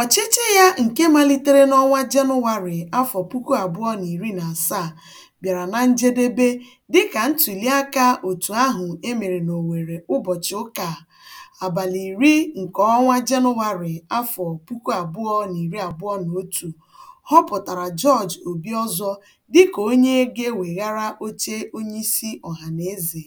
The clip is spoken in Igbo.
Ọchịchị ya nke malitere n'ọnwa Jenụwarị afọ puku abụọ na iri na asaa bịara na njedebe dịka ntụliaka otu ahụ e mere ụbọchị ụka abalị iri nke ọnwa Jenụwarị afọ puku abụọ na iri abụọ na otu họpụtara Jọọjị Obiọzọ dịka onye ga-eweghara oche onyeisi ọhanaeze.